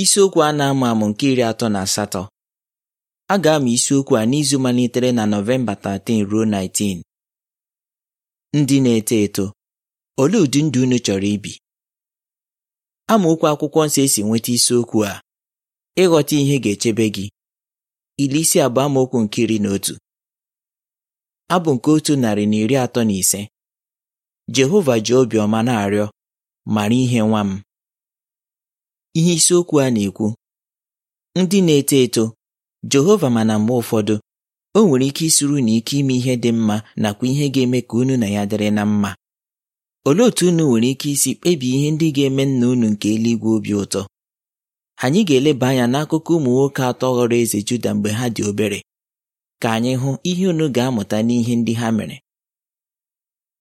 isiokwu a na-amụ amụ nke iri atọ na asatọ a ga-amụ isiokwu a n'izu malitere na Nọvemba 13 ruo 19 ndị na-eto eto olee ụdị ndụ unu chọrọ ibi amaokwu akwụkwọ nsọ esi nweta isiokwu a ịghọta ihe ga-echebe gị iri isi abụọ amaokwu nke iri na otu abụ nke otu narị na iri atọ na ise Jehova ji obiọma na-arịọ mara ihe nwa m Ihe isiokwu a na-ekwu ndị na-eto eto Jehova mana mgbe ụfọdụ o nwere ike isuru na ike ime ihe dị mma nakwa ihe ga-eme ka unu na ya dịrị na mma olee otu unu nwere ike isi kpebie ihe ndị ga-eme nna unu nke eluigwe obi ụtọ anyị ga-eleba anya n'akụkọ ụmụ nwoke atọ ghọrọ eze Juda mgbe ha dị obere ka anyị hụ ihe unu ga-amụta n'ihe ndị ha mere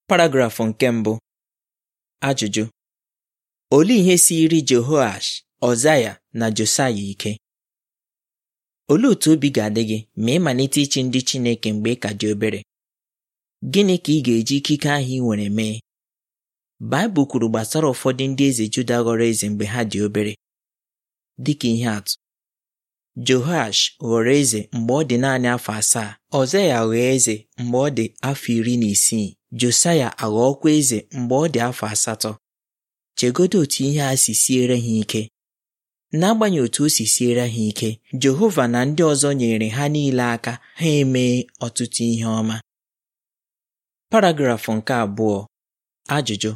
paragrafụ nke mbụ ajụjụ Olee ihe siri Jehoash, Ọzaya na Josaya ike? Olee otu obi ga-adị gị ma ị malite ichi ndị Chineke mgbe ị ka dị obere? Gịnị ka ị ga-eji ikike ahụ ị nwere mee? Baịbụl kwuru gbasara ụfọdụ ndị eze Juda ghọrọ eze mgbe ha dị obere. Dịka ihe atụ, Jehoash ghọrọ eze mgbe ọ dị naanị afọ asaa, Ọzaya ghọọ eze mgbe ọ dị afọ iri na isii, Josaya aghọọkwa eze mgbe ọ dị afọ asatọ. chegodo otu ihe a si siere ha ike n'agbanyeghị otu o si siere ha ike Jehova na ndị ọzọ nyere ha niile aka ha emee ọtụtụ ihe ọma paragrafụ nke abụọ ajụjụ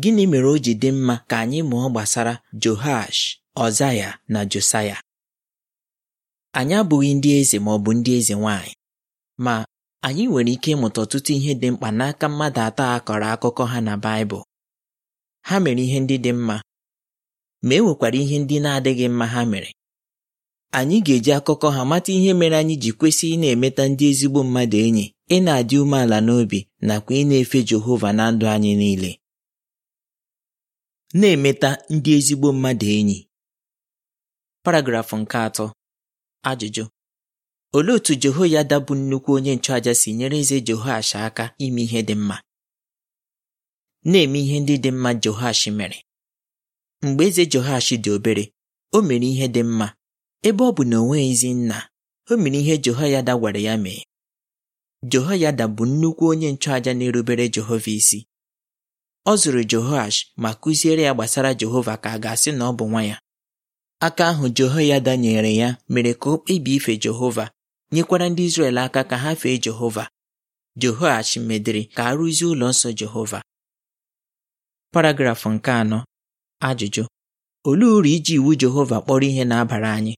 gịnị mere o ji dị mma ka anyị mụọ gbasara Joash Ọzaya na Josaya anyị abụghị ndị eze ma ọ bụ ndị eze nwanyị ma anyị nwere ike ịmụta ọtụtụ ihe dị mkpa n'aka mmadụ atọ a kọrọ akụkọ ha na Baịbụl ha mere ihe ndị dị mma ma e nwekwara ihe ndị na-adịghị mma ha mere anyị ga-eji akụkọ ha mata ihe mere anyị ji kwesị ị na-emeta ndị ezigbo mmadụ enyi ị na-adị umeala n'obi nakwa ịna efe Jehova na ndụ anyị niile na-emeta ndị ezigbo mmadụ enyi paragrafụ nke atọ ajụjụ olee otu Jehoyada dabụ nnukwu onye nchụàja si nyere eze Jehoash aka ime ihe dị mma na-eme ihe ndị dị mma Joash mere mgbe eze Joash dị obere o mere ihe dị mma ebe ọ bụ na o ezi nna o mere ihe Jehoyada gwara ya mee Jehoyada bụ nnukwu onye nchụaja na-erubere Jehova isi ọ zụrụ Jehoash ma kụziere ya gbasara Jehova ka a ga-asị na ọ bụ nwa ya aka ahụ Jehoyada nyere ya mere ka o ife Jehova nyekwara ndị Izrel aka ka ha fee Jehova Jehoash medịrị ka a rụzie ụlọ nsọ Jehova paragrafụ nke anọ ajụjụ olee uru iji iwu Jehova kpọrọ ihe na-abara anyị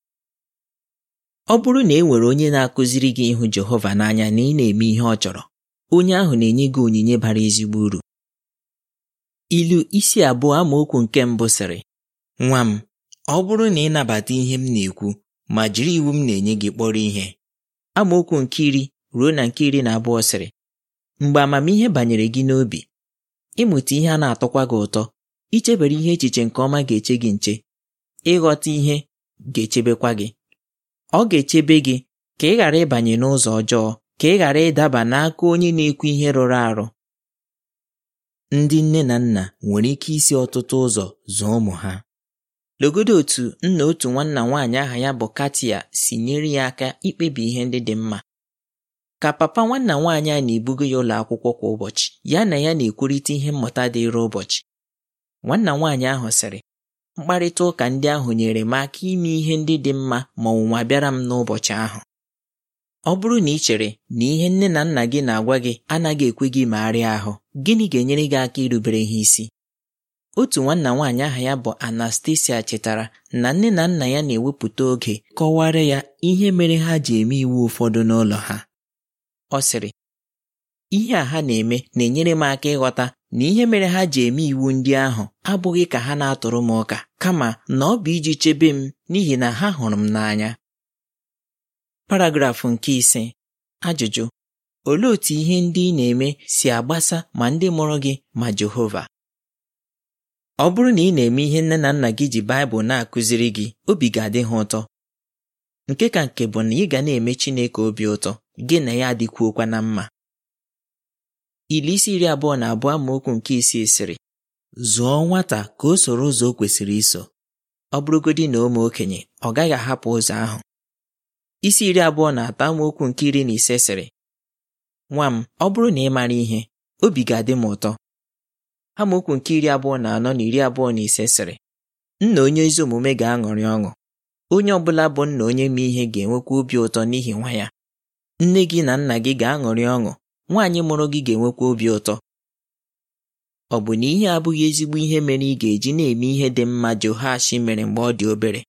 ọ bụrụ na e nwere onye na-akụziri gị ịhụ Jehova n'anya na ị na-eme ihe ọ chọrọ onye ahụ na-enye gị onyinye bara ezigbo uru ilu isi abụọ amaokwu nke mbụ sịrị nwa m ọ bụrụ na ị nabata ihe m na-ekwu ma jiri iwu m na-enye gị kpọrọ ihe amaokwu nke iri ruo na nke iri na abụọ sịrị mgbe amamihe banyere gị n'obi ịmụta ihe a na-atọkwa gị ụtọ ichebere ihe echiche nke ọma ga-eche gị nche ịghọta ihe ga-echebekwa gị ọ ga-echebe gị ka ị ghara ịbanye n'ụzọ ọjọọ ka ị ghara ịdaba n'aka onye na-ekwu ihe rụrụ arụ ndị nne na nna nwere ike isi ọtụtụ ụzọ zụọ ụmụ ha legodo otu nna otu nwanna nwaanyị aha ya bụ Katia si nyere ya aka ikpebi ihe ndị dị mma ka papa nwanna nwaanyị a na-ebugo ya ụlọ akwụkwọ kwa ụbọchị ya na ya na-ekwurịta ihe mmụta dịịrị ụbọchị nwanna nwaanyị ahụ sịrị mkparịta ụka ndị ahụ nyere m aka ime ihe ndị dị mma ma ọnwụnwa bịara m n'ụbọchị ahụ ọ bụrụ na ị chere na ihe nne na nna gị na-agwa gị anaghị ekwe gị magharịa ahụ gịnị ga-enyere gị aka irubere ha isi otu nwanna nwaanyị aha ya bụ Anastasia chetara na nne na nna ya na-ewepụta oge kọwara ya ihe mere ha ji eme iwu ụfọdụ n'ụlọ ha Ọ sịrị ihe a ha na-eme na-enyere m aka ịghọta na ihe mere ha ji eme iwu ndị ahụ abụghị ka ha na-atụrụ m ụka kama na ọ bụ iji chebe m n'ihi na ha hụrụ m n'anya paragrafụ nke ise ajụjụ olee otú ihe ndị ị na-eme si agbasa ma ndị mụrụ gị ma Jehova ọ bụrụ na ị na-eme ihe nne na nna gị ji Baịbụl na-akụziri gị obi ga-adị ha ụtọ nke ka nke bụ na ị ga na-eme Chineke obi ụtọ gị na ya adịkwuokwa na mma ili isi iri abụọ na abụọ amaokwu nke isii sịrị zụọ nwata ka o soro ụzọ o kwesịrị iso ọ bụrụgodi na ụmụ okenye ọ gaghị ahapụ ụzọ ahụ isi iri abụọ na atọ amaokwu nke iri na ise sịrị nwa m ọ bụrụ na ị mara ihe obi ga-adị m ụtọ amaokwu nke iri abụọ na anọ na iri abụọ na ise sịrị nna onye ezi omume ga-aṅụrị ọṅụ onye ọ bụla bụ nna onye ma ihe ga-enwekwa obi ụtọ n'ihi nwa ya nne gị na nna gị ga-aṅụrị ọṅụ nwaanyị mụrụ gị ga-enwekwa obi ụtọ ọ bụ na ihe abụghị ezigbo ihe mere ị ga-eji na-eme ihe dị mma Jehoash mere mgbe ọ dị obere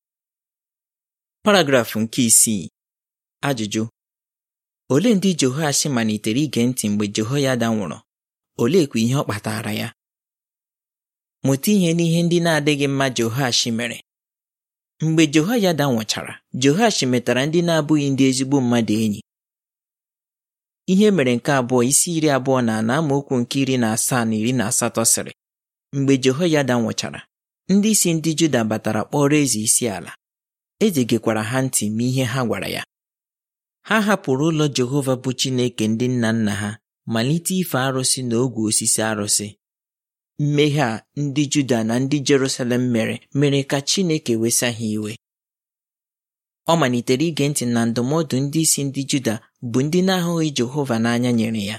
paragrafụ nke isii ajụjụ olee ndị Jehoash malitere ige ntị mgbe Jehoyada nwụrụ oleekwa ihe ọ kpatara ya mụta ihe n'ihe ndị na-adịghị mma Jehoash mere mgbe Jehoyada nwụchara Jehoash metara ndị na-abụghị ndị ezigbo mmadụ enyi ihe mere nke abụọ isi iri abụọ na ana amaokwu nke iri na asaa na iri na asatọ sịrị mgbe Jehoyada nwụchara ndị isi ndị Juda batara kpọrọ eze isi ala gekwara ha ntị ma ihe ha gwara ya ha hapụrụ ụlọ Jehova bụ Chineke ndị nna nna ha malite ife arụsị na ogwe osisi arụsị mmehie a ndị Juda na ndị Jerusalem mere mere ka Chineke wesa ha iwe ọ malitere ige ntị na ndụmọdụ ndị isi ndị Juda bụ ndị na-ahụghị Jehova n'anya nyere ya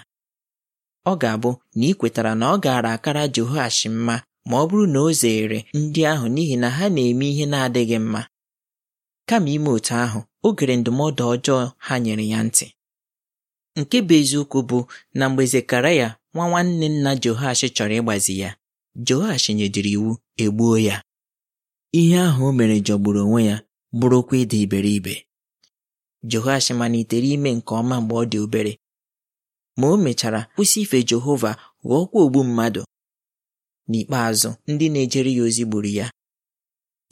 ọ ga-abụ na ị kwetara na ọ gaara akara Jehoashi mma ma ọ bụrụ na o zeere ndị ahụ n'ihi na ha na-eme ihe na-adịghị mma kama ime otu ahụ o gere ndụmọdụ ọjọọ ha nyere ya ntị nke bụ eziokwu bụ na mgbe Zekaraya nwa nwanne nna Jehoashi chọrọ ịgbazi ya Jehoashi nyedịrị iwu egbuo ya ihe ahụ o mere jọgburu onwe ya bụrụkwa ịdị iberibe na malitere ime nke ọma mgbe ọ dị obere ma o mechara kwụsị ife Jehova ghọọkwa ogbu mmadụ n'ikpeazụ ndị na-ejere ya ozi gburu ya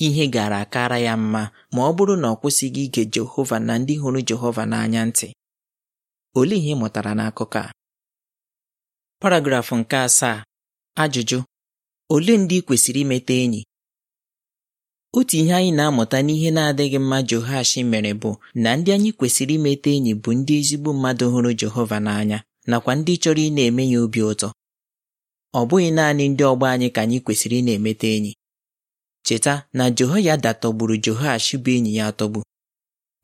ihe gara akara ya mma ma ọ bụrụ na ọ kwụsịghị ige Jehova na ndị hụrụ Jehova n'anya ntị olee ihe ị mụtara n'akụkọ a paragrafụ nke asaa ajụjụ olee ndị kwesịrị imeta enyi otu ihe anyị na-amụta n'ihe na-adịghị mma Jehoash mere bụ na ndị anyị kwesịrị imeta enyi bụ ndị ezigbo mmadụ hụrụ Jehova n'anya nakwa ndị chọrọ ị na-eme ya obi ụtọ ọ bụghị naanị ndị ọgbọ anyị ka anyị kwesịrị ị na-emeta enyi cheta na Jehoyada tọgburu Jehoash bụ enyi ya tọgbu.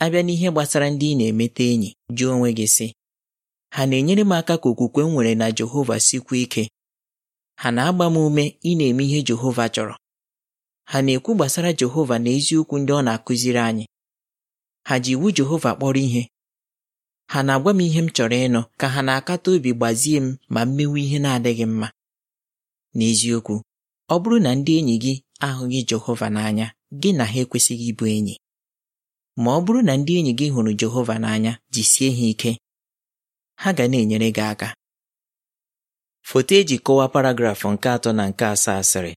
abịa n'ihe gbasara ndị ị na-emeta enyi jụọ onwe gị sị ha na-enyere m aka ka okwukwe m nwere na Jehova sikwuo ike ha na-agba m ume ị na-eme ihe Jehova chọrọ ha na-ekwu gbasara Jehova na eziokwu ndị ọ na-akụziri anyị ha ji iwu Jehova kpọrọ ihe ha na-agwa m ihe m chọrọ ịnụ ka ha na-akata obi gbazie m ma m ihe na-adịghị mma n'eziokwu ọ bụrụ na ndị enyi gị ahụghị Jehova n'anya gị na ha ekwesịghị ịbụ enyi ma ọ bụrụ na ndị enyi gị hụrụ Jehova n'anya jisie ha ike ha ga na-enyere gị aka foto eji kọwaa paragrafụ nke atọ na nke asaa asịrị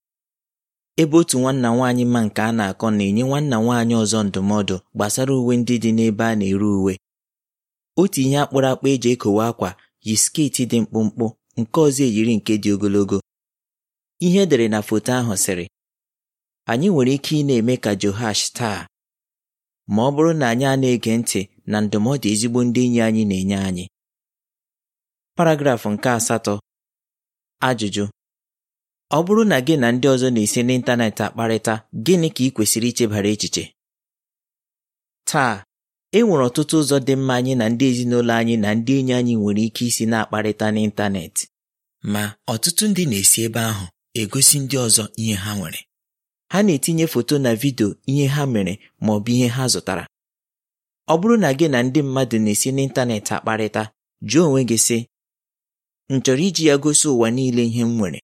ebe otu nwanna nwaanyị ma nke a na-akọ na-enye nwanna nwaanyị ọzọ ndụmọdụ gbasara uwe ndị dị n'ebe a na-ere uwe otu ihe akpụrụ akpụ eji ekowe akwa yi skeeti dị mkpụmkpụ nke ọzọ eyiri nke dị ogologo ihe edere na foto ahụ sịrị anyị nwere ike ị na-eme ka johash taa ma ọ bụrụ na anyị a na-ege ntị na ndụmọdụ ezigbo ndị enyi anyị na-enye anyị paragrafụ nke asatọ ajụjụ ọ bụrụ na gị na ndị ọzọ na-esi n'ịntanetị akparịta gịnị ka ị kwesịrị ichebara echiche taa e nwere ọtụtụ ụzọ dị mma anyị na ndị ezinụlọ anyị na ndị enyi anyị nwere ike isi na-akparịta n'ịntanetị ma ọtụtụ ndị na-esi ebe ahụ egosi ndị ọzọ ihe ha nwere ha na-etinye foto na vidio ihe ha mere ma ọ bụ ihe ha zụtara ọ bụrụ na gị na ndị mmadụ na-esi n'ịntanetị akparịta jụọ onwe gị sị m chọrọ iji ya gosi ụwa niile ihe m nwere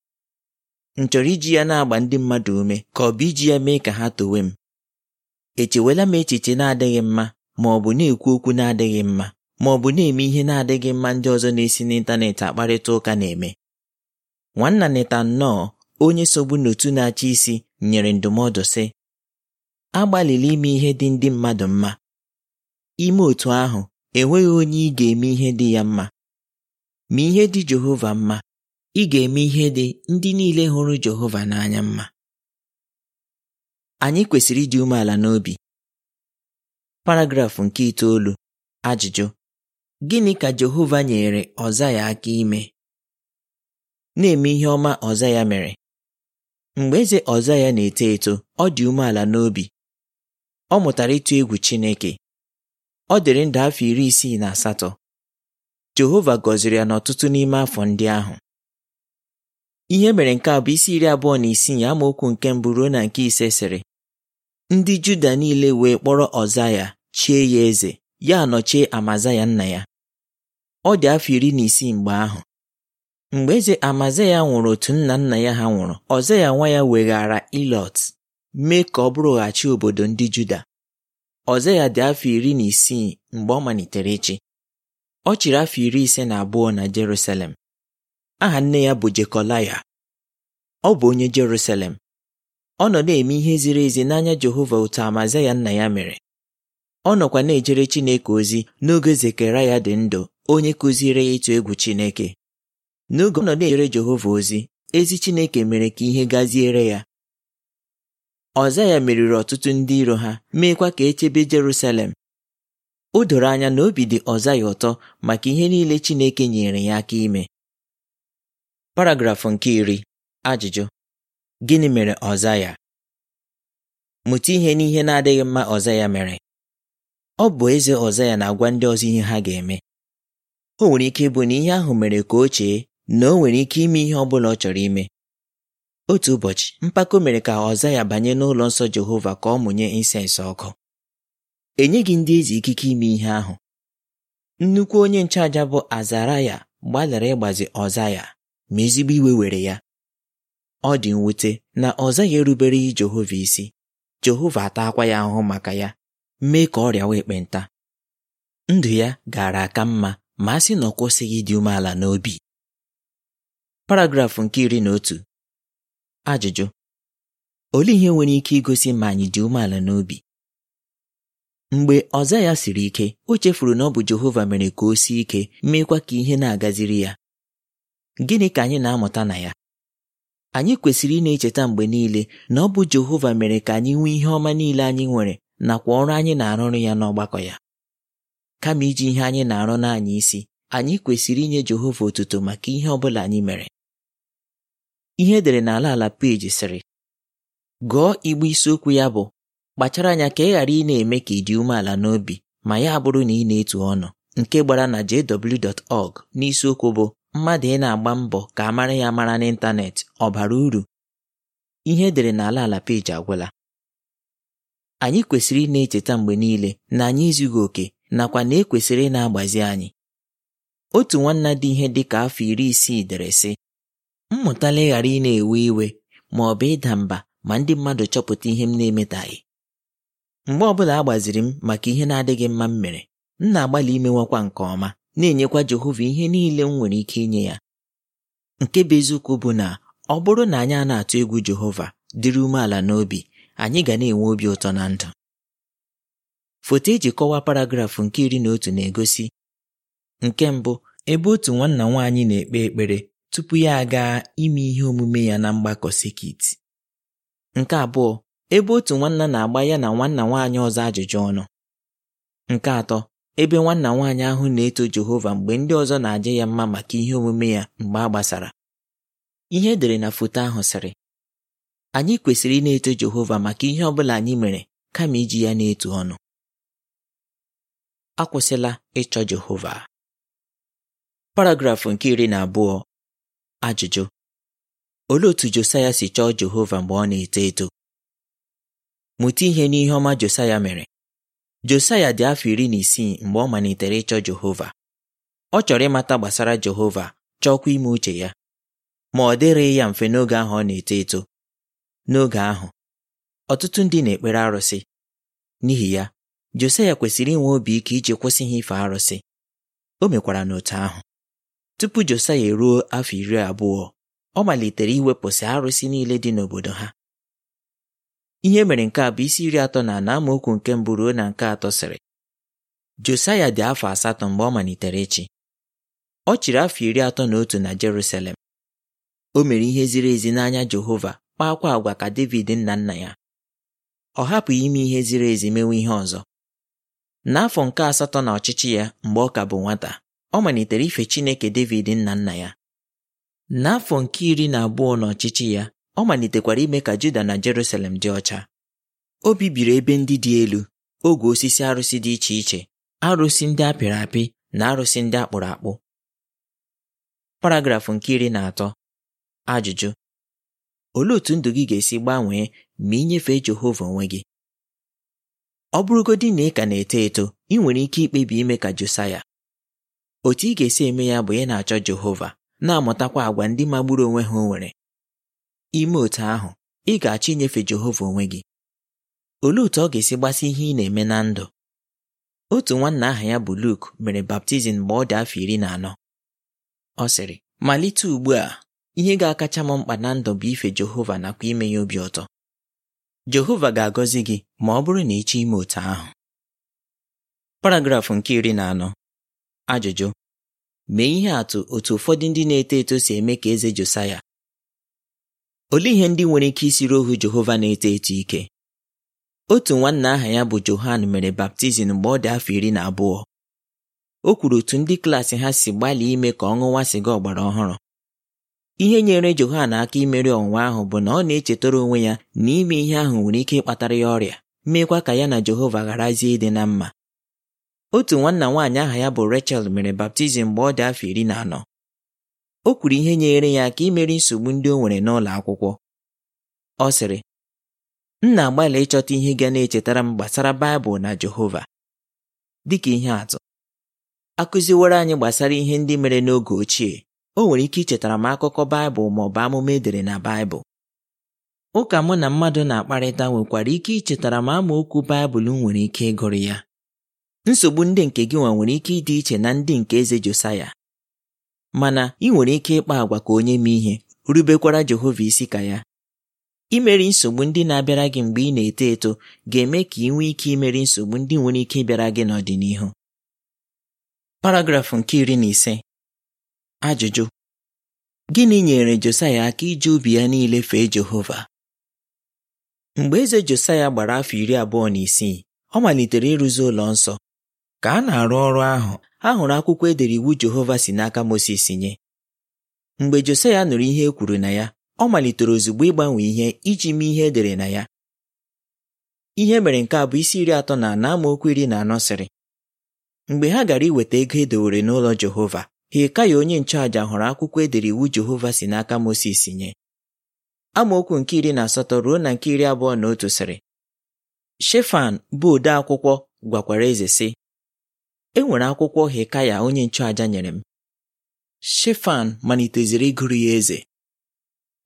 m chọrọ iji ya na-agba ndị mmadụ ume ka ọ bụ iji ya mee ka ha towe m echewela m echiche na-adịghị mma ma ọ bụ na-ekwu okwu na-adịghị mma ma ọ bụ na-eme ihe na-adịghị mma ndị ọzọ na-esi n'ịntanetị akparịta ụka na-eme nwanna nnọọ onye sogbu n'otu na-achị isi nyere ndụmọdụ sị agbalịla ime ihe dị ndị mmadụ mma ime otu ahụ enweghị onye ị ga-eme ihe dị ya mma ma ihe dị Jehova mma ị ga-eme ihe dị ndị niile hụrụ Jehova n'anya mma anyị kwesịrị ịdị umeala n'obi paragrafụ nke itoolu ajụjụ gịnị ka Jehova nyere ọza ya aka ime na-eme ihe ọma ọza ya mere mgbe eze ọza ya na-eto eto ọ dị umeala n'obi ọ mụtara ịtụ egwu Chineke ọ dịrị ndụ afọ iri isii na asatọ Jehova gọziri ya n'ọtụtụ n'ime afọ ndị ahụ Ihe mere nke a bụ isi iri abụọ na isii amaokwu nke mbụ ruo na nke ise sịrị ndị Juda niile wee kpọrọ Ọzaya chie ya eze ya anọchie Amazaya nna ya ọ dị afọ iri na isii mgbe ahụ mgbe eze Amazaya nwụrụ otu nna nna ya ha nwụrụ Ọzaya nwa ya weghaara Ilọt mee ka ọ bụrụghachi obodo ndị Juda Ọzaya dị afọ iri na isii mgbe ọ malitere ịchị ọ chịrị afọ iri ise na abụọ na Jerusalem aha nne ya bụ Jekolaya ọ bụ onye Jerusalem ọ nọ na-eme ihe ziri ezi n'anya Jehova otu Amazaya nna ya mere ọ nọkwa na-ejere Chineke ozi n'oge ya dị ndụ onye kụziere ya ịtụ egwu Chineke n'oge ọ nọ na-ejere Jehova ozi ezi Chineke mere ka ihe gaziere ya Ọzaya meriri ọtụtụ ndị iro ha meekwa ka echebe Jerusalem o doro anya na obi dị Ọzaya ụtọ maka ihe niile Chineke nyere ya aka ime paragrafụ nke iri ajụjụ gịnị mere Ọzaya? mụta ihe n'ihe na-adịghị mma Ọzaya mere ọ bụ eze Ọzaya na-agwa ndị ọzọ ihe ha ga-eme o nwere ike ịbụ na ihe ahụ mere ka o chee na o nwere ike ime ihe ọ bụla ọ chọrọ ime otu ụbọchị mpako mere ka Ọzaya banye n'ụlọ nsọ Jehova ka ọ mụnye insensị ọkụ enyeghị ndị eze ikike ime ihe ahụ nnukwu onye nchụaja bụ azaraya ya gbalịrị ịgbazi Ọzaya. ma ezigbo iwe were ya ọ dị mwute na ọ zaghị erubereghị Jehova isi Jehova atakwa ya ahụ maka ya mee ka ọrịa wa ekpenta ndụ ya gara aka mma ma a sị na ọ kwụsịghị ịdị umeala n'obi paragrafụ nke iri na otu ajụjụ olee ihe nwere ike igosi ma anyị dị umeala n'obi mgbe ọza ya siri ike o chefuru na ọ bụ Jehova mere ka o sie ike meekwa ka ihe na-agaziri ya Gịnị ka anyị na-amụta na ya? Anyị kwesịrị ị na-echeta mgbe niile na ọ bụ Jehova mere ka anyị nwee ihe ọma niile anyị nwere nakwa ọrụ anyị na-arụrụ ya n'ọgbakọ ya. Kama iji ihe anyị na-arụ n'anya isi, anyị kwesịrị inye Jehova otuto maka ihe ọ bụla anyị mere. Ihe edere n'ala ala peji sịrị gụọ igbe isiokwu ya bụ kpachara anya ka ị ghara ị na-eme ka ị dị umeala n'obi ma ya bụrụ na ị na-etu ọnụ nke gbara na jw.org n'isiokwu bụ mmadụ ị na-agba mbọ ka amara ya mara n'ịntanetị ọ bara uru ihe edere n'ala ala peji agwụla anyị kwesịrị ị na-echeta mgbe niile na anyị ezughị oke nakwa na ekwesịrị ị na-agbazi anyị otu nwanna dị ihe dị ka afọ iri isii dere sị mmụtala ịghara ị na-ewe iwe ma ọ bụ ịda mba ma ndị mmadụ chọpụta ihe m na-emetaghị mgbe ọbụla a gbaziri m maka ihe na-adịghị mma m mere m na-agbalị imewakwa nke ọma na-enyekwa Jehova ihe niile m nwere ike inye ya nke bụ eziokwu bụ na ọ bụrụ na anyị a na-atụ egwu Jehova dịrị umeala n'obi anyị ga na-enwe obi ụtọ na ndụ foto eji kọwaa paragrafụ nke iri na otu na-egosi nke mbụ ebe otu nwanna nwaanyị na-ekpe ekpere tupu ya aga ime ihe omume ya na mgbakọ sekit nke abụọ ebe otu nwanna na-agba ya na nwanna nwaanyị ọzọ ajụjụ ọnụ nke atọ ebe nwanna nwaanyị ahụ na-eto Jehova mgbe ndị ọzọ na-aja ya mma maka ihe omume ya mgbe a gbasara ihe edere na foto ahụ sịrị anyị kwesịrị ị na-eto Jehova maka ihe ọ bụla anyị mere kama iji ya na-etu ọnụ akwụsịla ịchọ Jehova paragrafụ nke iri na abụọ ajụjụ olee otu Josaya si chọọ Jehova mgbe ọ na-eto eto mụta ihe n'ihe ọma Josaya mere Josaya dị afọ iri na isii mgbe ọ malitere ịchọ Jehova. Ọ chọrọ ịmata gbasara Jehova chọọkwa ime uche ya ma ọ dịrịghị ya mfe n'oge ahụ ọ na-eto eto. N'oge ahụ, ọtụtụ ndị na-ekpere arụsị. N'ihi ya, Josaya kwesịrị inwe obi ike iji kwụsị ha ife arụsị. O mekwara n'otu ahụ. Tupu Josaya eruo afọ iri abụọ, ọ malitere iwepụsị arụsị niile dị n'obodo ha. Ihe mere nke a bụ isi iri atọ na ana amaokwu nke mbụ ruo na nke atọ sịrị Josaya dị afọ asatọ mgbe ọ malitere ịchị ọ chịrị afọ iri atọ na otu na Jerusalem o mere ihe ziri ezi n'anya Jehova kpaakwa agwa ka David nna nna ya ọ hapụghị ime ihe ziri ezi mewe ihe ọzọ n'afọ nke asatọ na ọchịchị ya mgbe ọ ka bụ nwata ọ malitere ife Chineke David nna nna ya n'afọ nke iri na abụọ na ọchịchị ya ọ malitekwara ime ka Juda na Jerusalem dị ọcha o bibiri ebe ndị dị elu ogwe osisi arụsị dị iche iche arụsị ndị apịrị apị na arụsị ndị akpụrụ akpụ paragrafụ nke iri na atọ ajụjụ olee otú ndụ gị ga-esi gbanwee ma ị nyefee Jehova onwe gị ọ bụrụgodị na ị ka na-eto eto ị nwere ike ikpebi ime ka Josaya otu ị ga-esi eme ya bụ ị na-achọ Jehova na-amụtakwa àgwà ndị magburu onwe ha o nwere ime otu ahụ ị ga-achọ inyefe Jehova onwe gị olee otu ọ ga-esi gbasi ihe ị na-eme na ndụ otu nwanna aha ya bụ Luke mere baptizim mgbe ọ dị afọ iri na anọ ọ sịrị malite ugbu a ihe ga-akacha m mkpa na ndụ bụ ife Jehova nakwa ime ya obi ụtọ Jehova ga-agọzi gị ma ọ bụrụ na ịchọ ime otu ahụ paragrafụ nke iri na anọ ajụjụ mee ihe atụ otu ụfọdụ ndị na-eto eto si eme ka eze Josaya olee ihe ndị nwere ike isiri ohu Jehova na-eto eto ike otu nwanna aha ya bụ Johan mere baptizim mgbe ọ dị afọ iri na abụọ o kwuru otu ndị klaasị ha si gbalị ime ka ọ ṅụwa sịga ọgbara ọhụrụ ihe nyere Johan aka imeri ọnwụnwa ahụ bụ na ọ na-echetara onwe ya na ime ihe ahụ nwere ike ịkpatara ya ọrịa meekwa ka ya na Jehova gharazie ịdị na mma otu nwanna nwaanyị aha ya bụ Rachel mere baptizim mgbe ọ dị afọ iri na anọ o kwuru ihe nyere ya aka imeri nsogbu ndị o nwere n'ụlọ akwụkwọ ọ sịrị m na-agbalị ịchọta ihe ga na-echetara m gbasara Baịbụl na Jehova dịka ihe atụ akụziworo anyị gbasara ihe ndị mere n'oge ochie o nwere ike ichetara m akụkọ Baịbụl ma ọ bụ amụma edere na Baịbụl ụka mụ na mmadụ na-akparịta nwekwara ike ichetara m amaokwu Baịbụl nwere ike ịgụrụ ya nsogbu ndị nke gị nwa nwere ike ịdị iche na ndị nke eze Josaya mana ị nwere ike ịkpa àgwà ka onye mee ihe rubekwara Jehova isi ka ya imeri nsogbu ndị na-abịara gị mgbe ị na-eto eto ga-eme ka ị nwee ike imeri nsogbu ndị nwere ike ịbịara gị n'ọdịnihu paragrafụ nke iri na ise ajụjụ gịnị nyere Josaya aka iji ubi ya niile fee Jehova mgbe eze Josaya gbara afọ iri abụọ na isii ọ malitere ịrụzi ụlọ nsọ ka a na-arụ ọrụ ahụ ha hụrụ akwụkwọ edere iwu Jehova si n'aka Mosis nye mgbe Josaya nụrụ ihe e kwuru na ya ọ malitere ozugbo ịgbanwe ihe iji mee ihe edere na ya ihe mere nke a bụ isi iri atọ na anọ amaokwu iri na anọ sịrị mgbe ha gara iweta ego edowere n'ụlọ Jehova Hilkaya onye nchụàja hụrụ akwụkwọ edere iwu Jehova si n'aka Mosis nye amaokwu nke iri na asatọ ruo na nke iri abụọ na otu sịrị Shefan bụ ode akwụkwọ gwakwara eze sị enwere akwụkwọ Hekaya onye nchụàja nyere m Shefan maliteziri ịgụrụ ya eze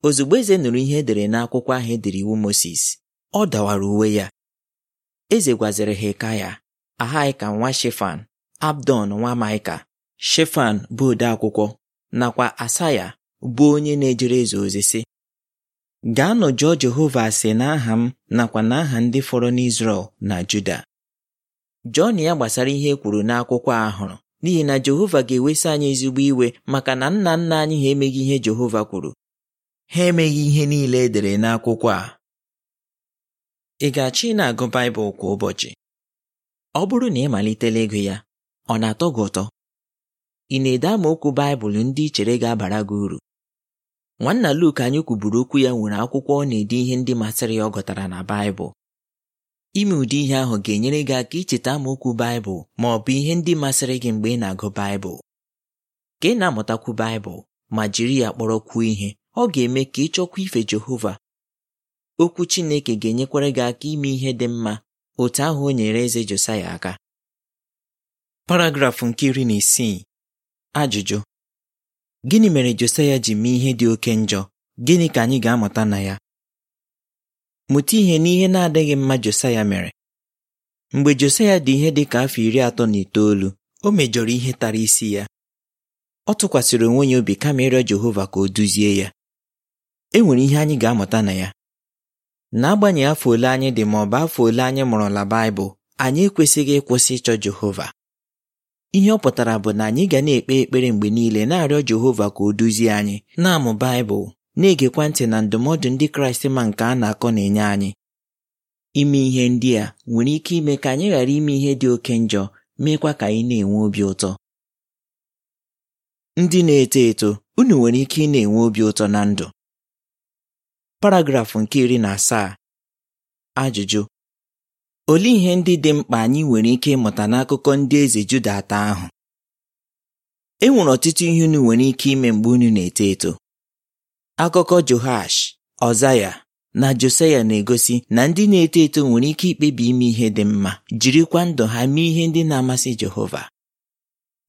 ozugbo eze nụrụ ihe edere n'akwụkwọ ahụ edere iwu Mosis ọ dawara uwe ya eze gwaziri Hekaya Ahaika nwa Shefan Abdon nwa Maịka Shefan bụ ode akwụkwọ nakwa Asaya bụ onye na-ejere eze ozi si. gaa nọ jụọ Jehova ase n'aha m nakwa n'aha ndị fọrọ n'Izrel na Juda Jọn ya gbasara ihe e kwuru n'akwụkwọ ahụrụ, n'ihi na Jehova ga-ewesa anyị ezigbo iwe maka na nna nna anyị ha emeghị ihe Jehova kwuru ha emeghị ihe niile e dere n'akwụkwọ a ị ga-achọ ị na-agụ Baịbụl kwa ụbọchị ọ bụrụ na ị malitela ego ya ọ na-atọ gị ụtọ ị na-ede amaokwu Baịbụl ndị ị chere ga-abara gị uru nwanna Luk anyị kwuburu okwu ya nwere akwụkwọ ọ na-ede ihe ndị masịrị ya ọ gụtara na Baịbụl ime ụdị ihe ahụ ga-enyere gị aka icheta okwu Baịbụl ma ọ bụ ihe ndị masịrị gị mgbe ị na-agụ Baịbụl ka ị na-amụtakwu Baịbụl ma jiri ya kpọrọkwuo ihe ọ ga-eme ka ị chọkwa ife Jehova okwu Chineke ga-enyekwara gị aka ime ihe dị mma otu ahụ o nyere eze Josaya aka paragrafụ nke iri na isii ajụjụ gịnị mere Josaya ji mee ihe dị oke njọ gịnị ka anyị ga-amụta na ya mụta ihe n'ihe na-adịghị mma Josaya mere mgbe Josaya dị ihe dị ka afọ iri atọ na itoolu o mejọrọ ihe tara isi ya ọ tụkwasịrị onwe ya obi kama ịrịọ Jehova ka o duzie ya e nwere ihe anyị ga-amụta na ya n'agbanyeghị afọ ole anyị dị ma ọ bụ afọ ole anyị mụrụla Baịbụl anyị ekwesịghị ịkwụsị ịchọ Jehova ihe ọ pụtara bụ na anyị ga na-ekpe ekpere mgbe niile na-arịọ Jehova ka o duzie anyị na-amụ Baịbụl na-egekwa ntị na ndụmọdụ ndị Kraịst ma nke a na-akọ na-enye anyị ime ihe ndị a nwere ike ime ka anyị ghara ime ihe dị oke njọ meekwa ka anyị na-enwe obi ụtọ ndị na-eto eto unu nwere ike ị na-enwe obi ụtọ na ndụ paragrafụ nke iri na asaa ajụjụ olee ihe ndị dị mkpa anyị nwere ike ịmụta n'akụkọ ndị eze Juda atọ ahụ e nwere ọtụtụ ihe unu nwere ike ime mgbe unu na-eto eto akụkọ johash Ọzaya na Josaya na-egosi na ndị na-eto eto nwere ike ikpebi ime ihe dị mma jirikwa ndụ ha mee ihe ndị na-amasị Jehova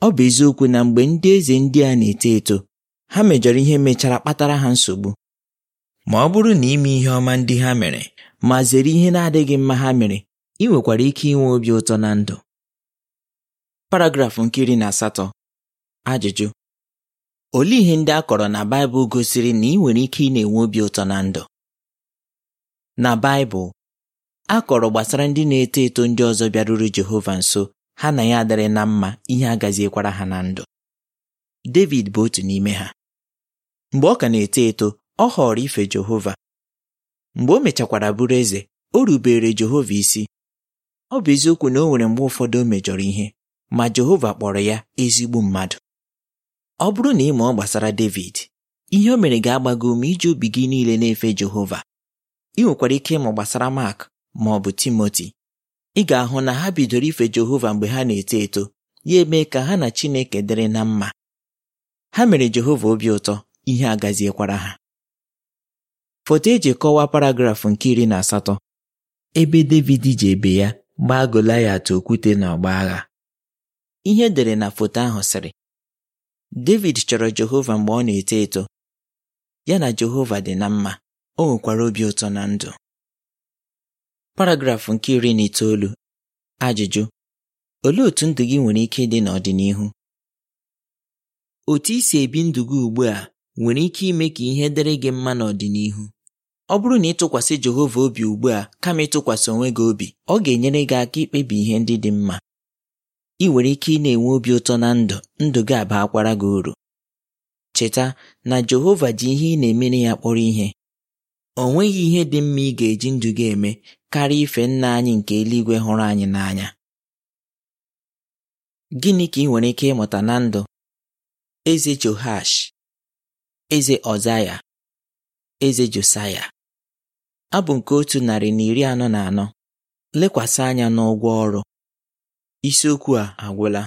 ọ bụ eziokwu na mgbe ndị eze ndị a na-eto eto ha mejọrọ ihe mechara kpatara ha nsogbu ma ọ bụrụ na ime ihe ọma ndị ha mere ma zere ihe na-adịghị mma ha mere ị nwekwara ike inwe obi ụtọ na ndụ paragrafụ nke na asatọ ajụjụ Olee ihe ndị a kọrọ na Baịbụl gosiri na ị nwere ike ị na-enwe obi ụtọ na ndụ? Na Baịbụl, a kọrọ gbasara ndị na-eto eto ndị ọzọ bịaruru Jehova nso ha na ya adịrị na mma ihe agaziekwara ha na ndụ. David bụ otu n'ime ha. Mgbe ọ ka na-eto eto, ọ họrọ ife Jehova. Mgbe o mechakwara bụrụ eze, o rubere Jehova isi. Ọ bụ eziokwu na o nwere mgbe ụfọdụ o mejọrọ ihe, ma Jehova kpọrọ ya ezigbo mmadụ. ọ bụrụ na ị mụọ gbasara David ihe o mere ga-agbago ume iji obi gị niile na-efe Jehova ị nwekwara ike ịmụ gbasara Mark ma ọ bụ Timoti ị ga-ahụ na ha bidoro ife Jehova mgbe ha na-eto eto ya eme ka ha na Chineke dịrị na mma ha mere Jehova obi ụtọ ihe agaziekwara ha foto eji kọwaa paragrafụ nke iri na asatọ ebe David ji ebe ya gbaa Goliath okwute na ọgba agha ihe edere na foto ahụ sịrị David chọrọ Jehova mgbe ọ na-eto eto ya na Jehova dị na mma o nwekwara obi ụtọ na ndụ paragrafụ nke iri na itoolu ajụjụ olee otu ndụ gị nwere ike ịdị n'ọdịnihu otu isi ebi ndụ gị ugbu a nwere ike ime ka ihe dịrị gị mma n'ọdịnihu ọ bụrụ na ịtụkwasị Jehova obi ugbu a kama ịtụkwasị onwe gị obi ọ ga-enyere gị aka ikpebi ihe ndị dị mma ị nwere ike ị na-enwe obi ụtọ na ndụ ndụ gị aba akwara gị uru cheta na Jehova ji ihe ị na-emere ya kpọrọ ihe o nweghị ihe dị mma ị ga-eji ndụ gị eme karịa ife nna anyị nke eluigwe hụrụ anyị n'anya gịnị ka ị nwere ike ịmụta na ndụ eze johash eze Ọzaya eze Josaya abụ nke otu narị na iri anọ na anọ lekwasị anya n'ụgwọ ọrụ Isiokwu a agwụla.